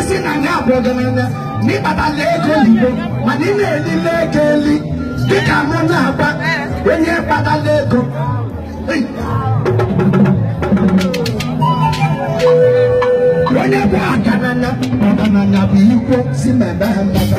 esi na ndị abụọ gị n'ịkpata ego oyibo mana ị na-elile ego eli dịka mụ na-agba onye kpatala ego onye bụ agananya ọgananya bụ ikwo si mebe ha mmata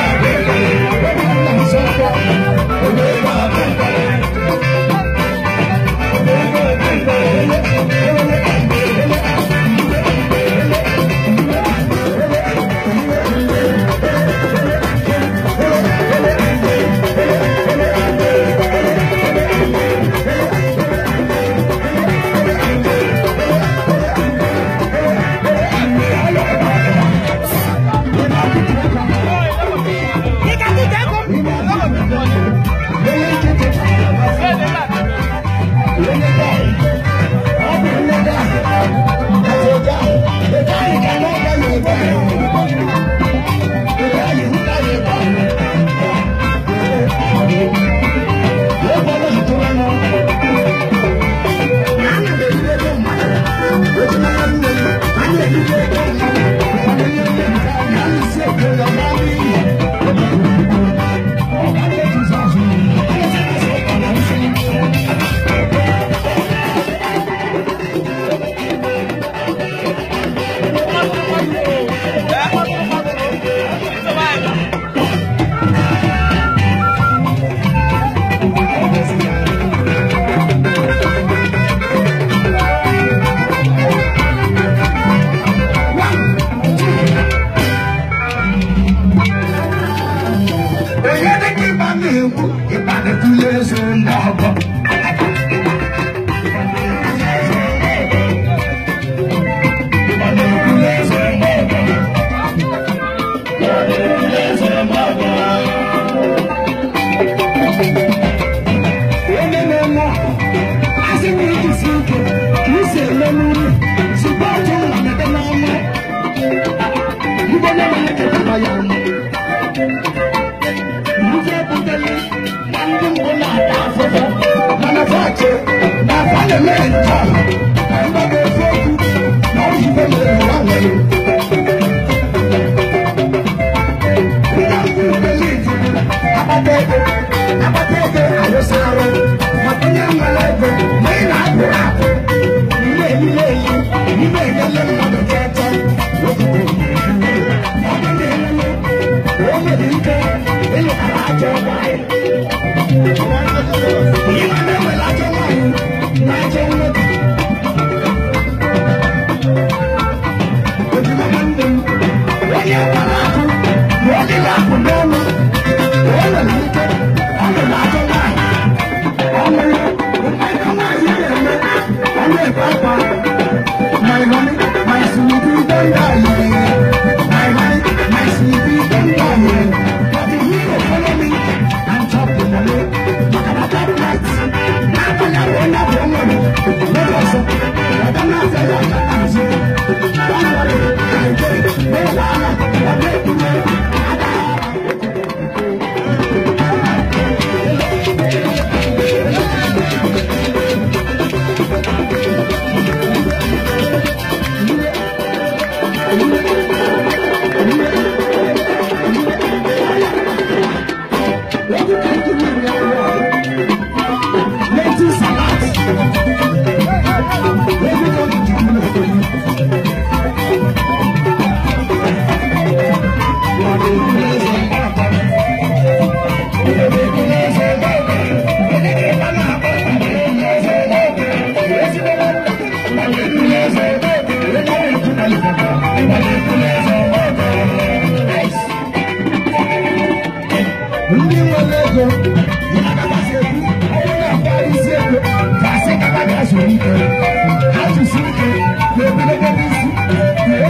Yeah.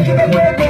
Thank you.